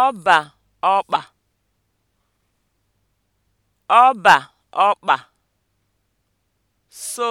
ọbà ọkpà ọbà ọkpà so.